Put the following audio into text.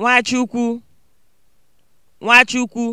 Nwachukwu Nwachukwu